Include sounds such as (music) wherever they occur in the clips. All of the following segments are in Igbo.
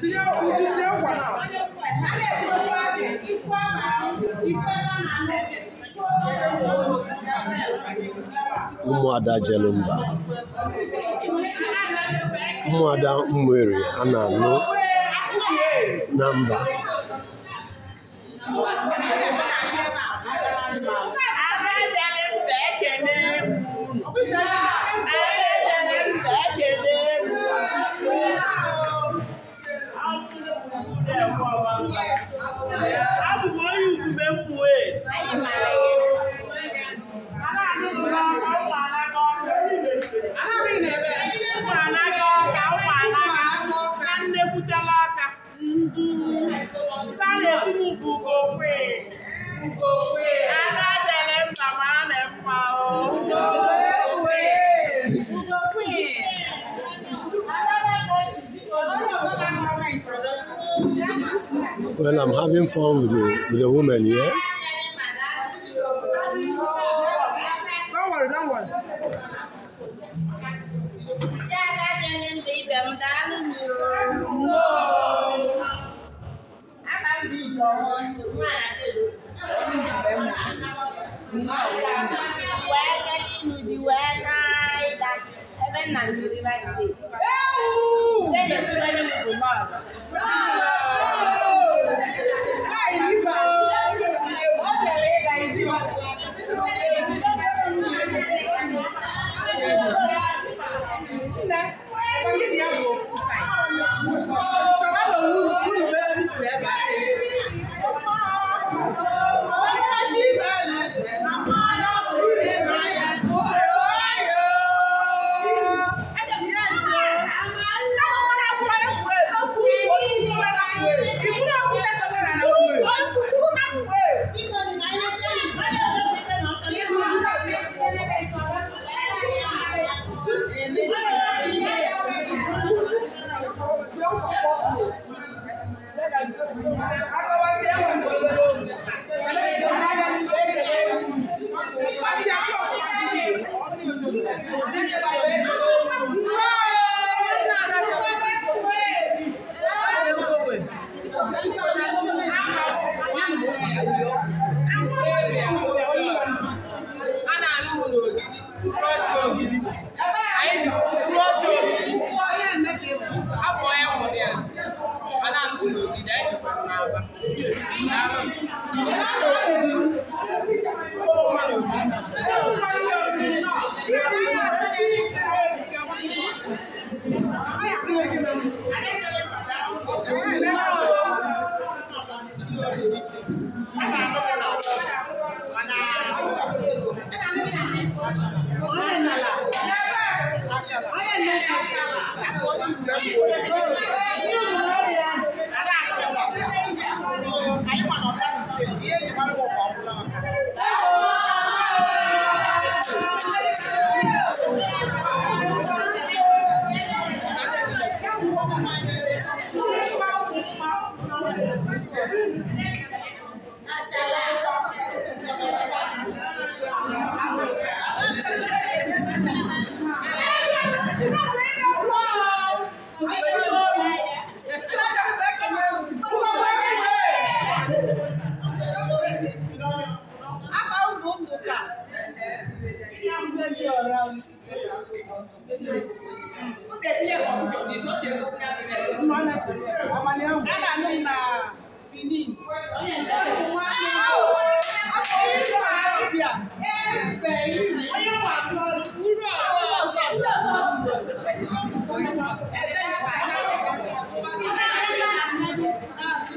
tinye uju tinye nkwa na ụmụada jelumba ụmụada mmeri a na-anụ na mba Yes. Well, I'm having fun with the, with the woman here. Yeah? Don't worry, don't to the West State. Gracias.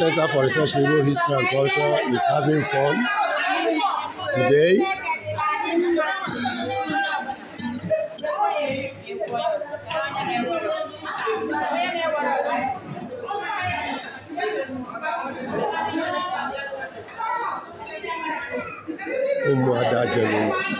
Center for Research in Igbo History and Culture is having fun today. Umuada Jelulu.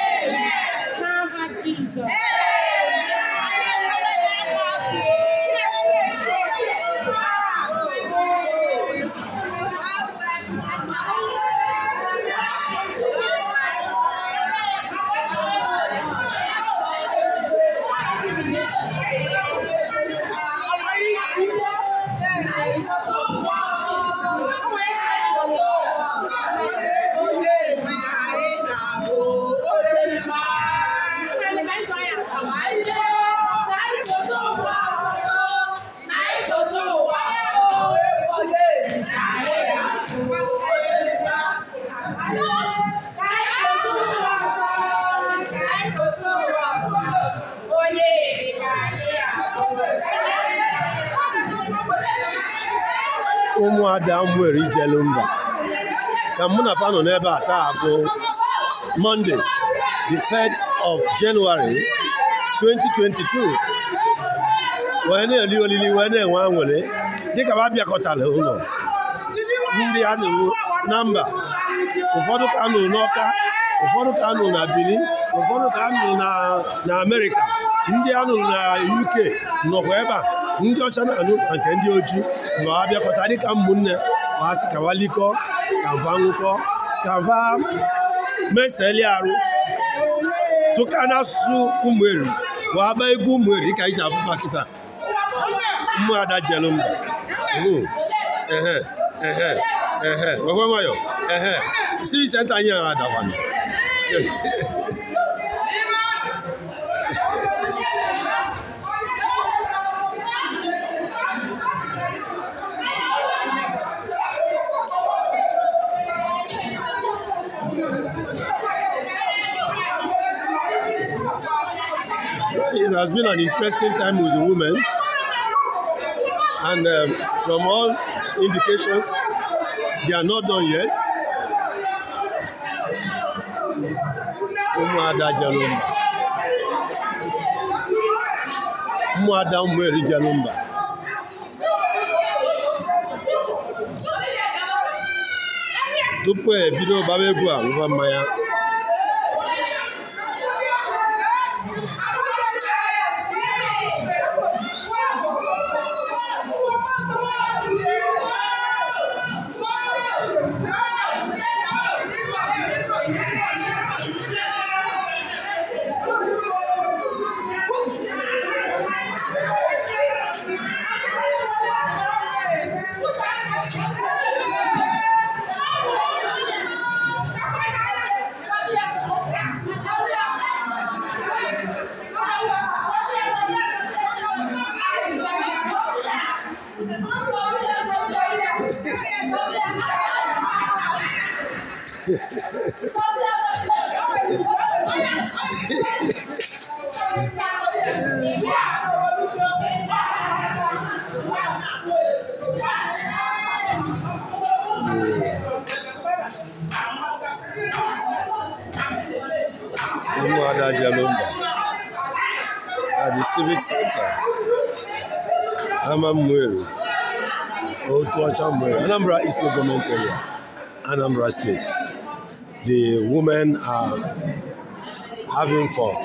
ụmụada m nwere ije mba ka mụ na fanụ n'ebe a taa bụ monde the 3rd of January 2022 wee na-eli olili wee na-enwe anwụrị dịka ha bịakọtara ụlọ ndị a na mba ụfọdụ ka nụrụ n'Ọka ụfọdụ ka nụrụ na Benin ụfọdụ ka nụrụ na Amerịka ndị anụrụ na UK nọkwa ebe a ndị ọcha na-anụ na nke ndị oji nga wabia ko tari kam munne wasi kawali ko kamvangu ko kamva meseli aru sukana su umweri waba egu umweri ka ija afufa kita mmu ada jelu mba hmm. ehe ehe ehe wewe mayo ehe si senta nyera adawani (laughs) It has been an interesting time with the women, and um, from all indications, they are not done yet. Ụmụ Jalumba. Ụmụ ada Jalumba. tupu ebido gbaba egwu a ngwa mmanya at the civic center amamwere otuacha mwere anambra is no government area anambra state the women are having fun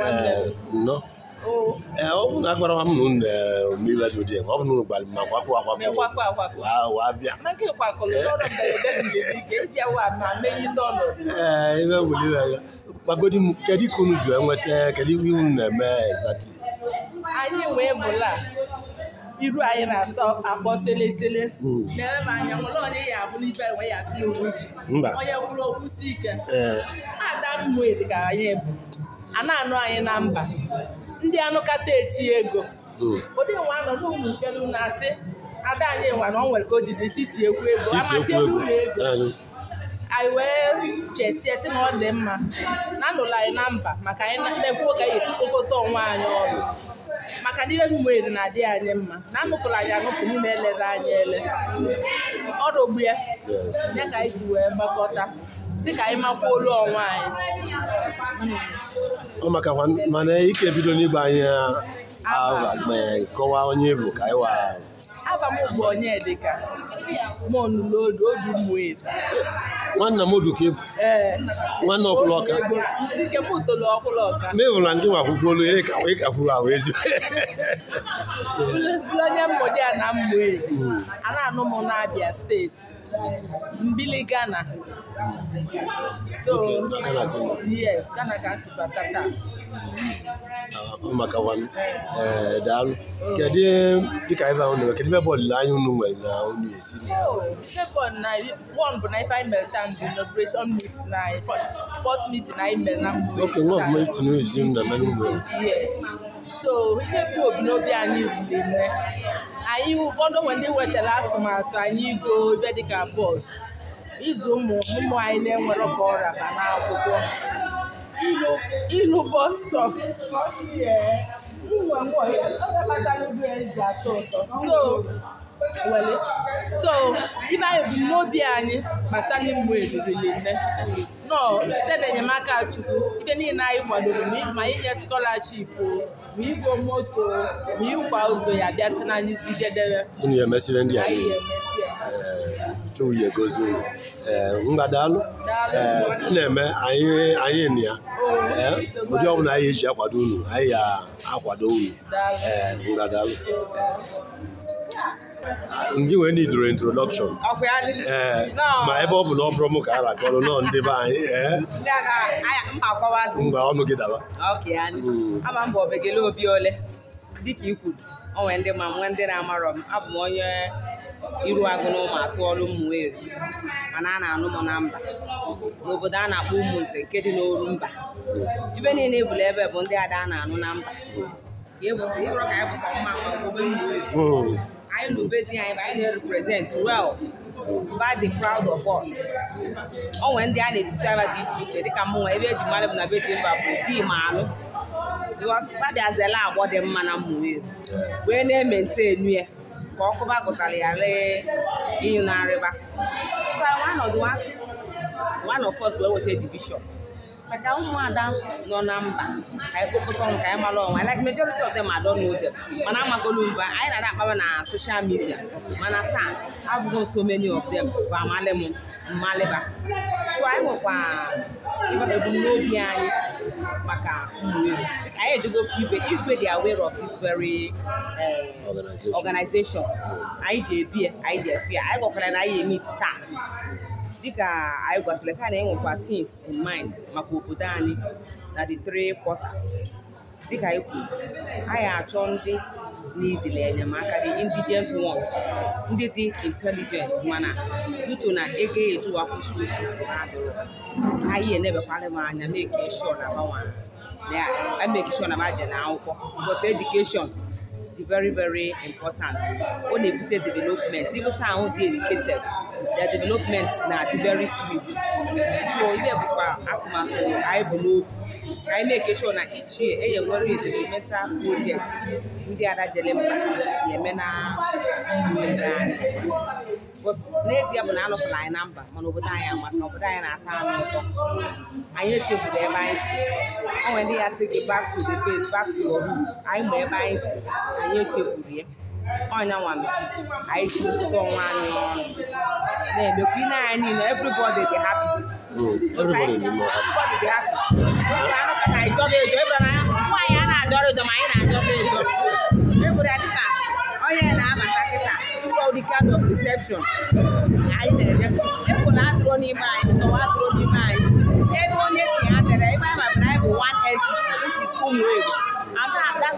Uh, no. ee eh, ọ bụrụ na agwara eh, m dị ụdị ọ na ma akwapụ wabịa ee ibe welire ya gbagodi m kedu ka unu ji enweta kedu ihe unu na-eme exactly anyị wee bụla iru anyị na-atọ akpọ selesele hmm. na-eme m anya ya abụ n'ibe ya si n'uwe ji onye kwuru okwu si eh. a anụ anyị na mba ndị anụkata eti ego hmm. ụdị nwa nọ n'ụmụ nkelu na-asị ada anyị nwa na ọ nwere ka o jidere si tie ekwu ego ụlọ ego anyị wee chesie esi na ọ dị mma na anụla anyị na mba maka anyị na-ekwuo ka anyị esi kpokọta onwe anyị ọrụ maka na ihe m nwere na-adị anyị mma na anụpụla anyị anụpụ m na-elere anyị ele ọrụ ogbu ya ya ka anyị ji wee gbakọta sị ka anyị makwuo olu onwe anyị ọ maka mana ike bido n'igba anyị kọwaa onye bụ ka anyị wara aba m bụ onye Onyedika monlodu obi mmụedo nwanna m oduka egwu nwanne ọkwụlọka nke m toro ọkwụlọka ma ịhụrụ na ndị nwa kwukwuolu ere ka wee kakwuru ahụ ezi onye mmụdị a na mmụe a na-anụ m na Abia steeti mbili Ghana so yes Ghana ka nsụbata taa maka daalụ kedu dịka ibe ahụ nwere kedu ebe olileanya unu nwere na unu esi bụ na ife anyị mere bụ inauguration na first na mgbe ok nwa na so ihe bụ obi anyị anyị ụfọdụ onwe ndị wetara atụmatụ anyị igo ebe dịka bọs ịzụ ụmụ anyị na-enwerọ ọrịa ma n'akwụkwọ ịlụ bọs stọp so ibe anyị bụ n'obi anyị gbasara ịmụ erurili nọ site n'enyemaka Chukwu ike niile anyị kwadoro ma inye scholarship ma igwe moto ma ịkwa ụzọ ya bịasị n'anyị njedebe chọọ uye gozi unu eh, mgbadalụ ee eh, na-eme anyị na ya ee eh, ụdị ọbụla anyị eji akwado unu anyị ya akwado unu ee mgbadalụ ndị nwere need introdọkshọn ee ma ebe ọ bụ na ọ bụrụ m ka a rakọrọ nọ ndị be anyị ee mgbe ọnụ gị daba ama m bụ obegele obi ole dịka i kwuru o ndị ma nwee ndị na-amarọ m abụ m onye iru agụ n'ụmụ atụọlụ m Owerri mana a na-anụ m na mba n'obodo a na-akpọ Umunze nke dị n'oru mba ibe niile ebula ebe bụ ndị ada a na-anụ na mba ka e bụsị ka anyị e bụsọ nwa mma obodo m Owerri anyị na ube di anyị anyị na-represent wel mba dị proud of us ọ nwere ndị a na-etutu aba dị iche iche dịka m nwa ebe eji mara m na be dị mba bụ di ma anụ because ba bịazela agbọ dị mma na Owerri wee na-ementenu ya ka ọkụba gụtara ya ree ịnyụ na-arịba so anyị nwa nọdụ asị one of us wee weta divishọn maka ụmụada nọ na mba ka anyị kpokọta ọnụ mara ọnwa like majority of them ma know n'oge mana amagolu mba anyị na-ada akpaba na social media mana taa azụgo so many of them bụ amalị m so anyị nwekwa ebumnobi anyị maka ụmụewu anyị ejigo ibe igwe dị aware of this very um, organization anyị ji anyị ji efi anyị na anyị emit taa dịka anyị gwasịrị taa na enwekwa tins in mind maka obodo anyị na the three quarters dịka anyị kwuru anyị achọ ndị n'idile enyemaka the indigent ones ndị dị intelligent mana duto na ego ejuwapụ school fees na-adịrọ anyị enebekwara m anya na-eke sure na gbanwe na ya emeke sure na maje na akwụkwọ because education dị very very important ọ na-ebute development even taa ahụ dị educated their development na dị very swift so ihe bụkwa atụmatụ anyị bụ n'obi ka anyị na-eke sure na ichie enye nwere experimental project ndị ada jere mba na-eme na anyị. n'ezie bụ na anọpụla anyị na mba mana obodo anyị amaka obodo anyị na-ata anyị ụtọ anyị echefuru ebe anyị si o nwere ndị ya sị gị back to the base back to your root anyị ma ebe anyị si anyị echefuru ya ọnya nwame anyị ji ụtụtụ ọnwa anyị ọnụ na-emekwa ine anyị niile everybody dị happy everybody will be happy. nwaanyị a na-ajọrọ ịjọ ma anyị na-ajọrọ ịjọ ebụra dịka ọ na-abata kịta ndị kind of reception anyị na-eme ekwela atụrụ n'ime anyị tọwa atụrụ n'ime anyị ebe onye si ha tere, ebe anyị mabara anyị bụ one which is that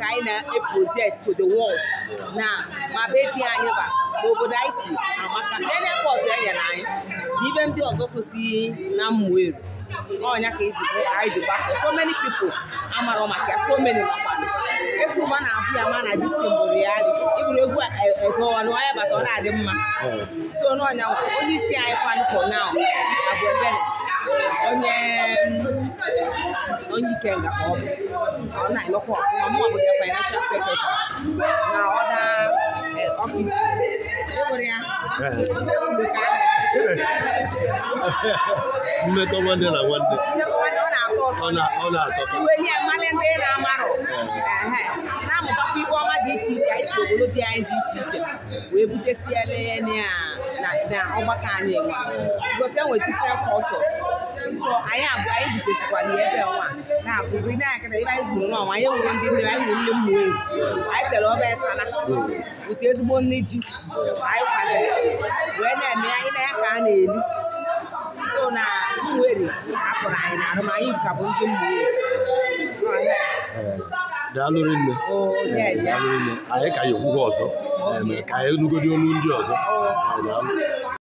ka anyị na-project to the world na ma anyị ba n'obodo anyị si amaka ibe ndị ọzọ sosi na Nmueri ọnya ka e anyị ji gbakọ so many pipo amarọ maka ya so many makwa etu ụba na-abụ ya ma na distin bụrụ ya dị ịbụrụ egwu etoọnụ e, onye bata ọ na-adị mma so n'ọnya nwa onye isi anyị kwanụ for now abụ ebere onye onye ikenga ka ọ bụ ọ na-emekwa ọfụma mụ ya financial secretary na ọda ọfiisi eh, mmekọ nwanne na nwanne ọ na-atọ na-amụtakwa ife ọma dị iche iche anyị si obodo dị anyị dị iche iche wee butesiela ya na ọgbakọ anyị gosi enwe different so anyị abụọ anyị jitesikwara ya ebe nwa na-akụzi ndị anyị kata ebe anyị gwuru n'ọnwa, anyị wuru ndị nne anyị wuru nne mmụọ ewu anyị tere ọba esala otu ezigbo nne ji anyị kwadoro wee na-eme anyị na ya ka a na eli so na mweri akpụrụ anyị na arụmanyị ka bụ ndị mmụọ ewu daalụrụ nne anyị ka ya ekwugo ọzọ ka anyị nugodi olu ndị ọzọ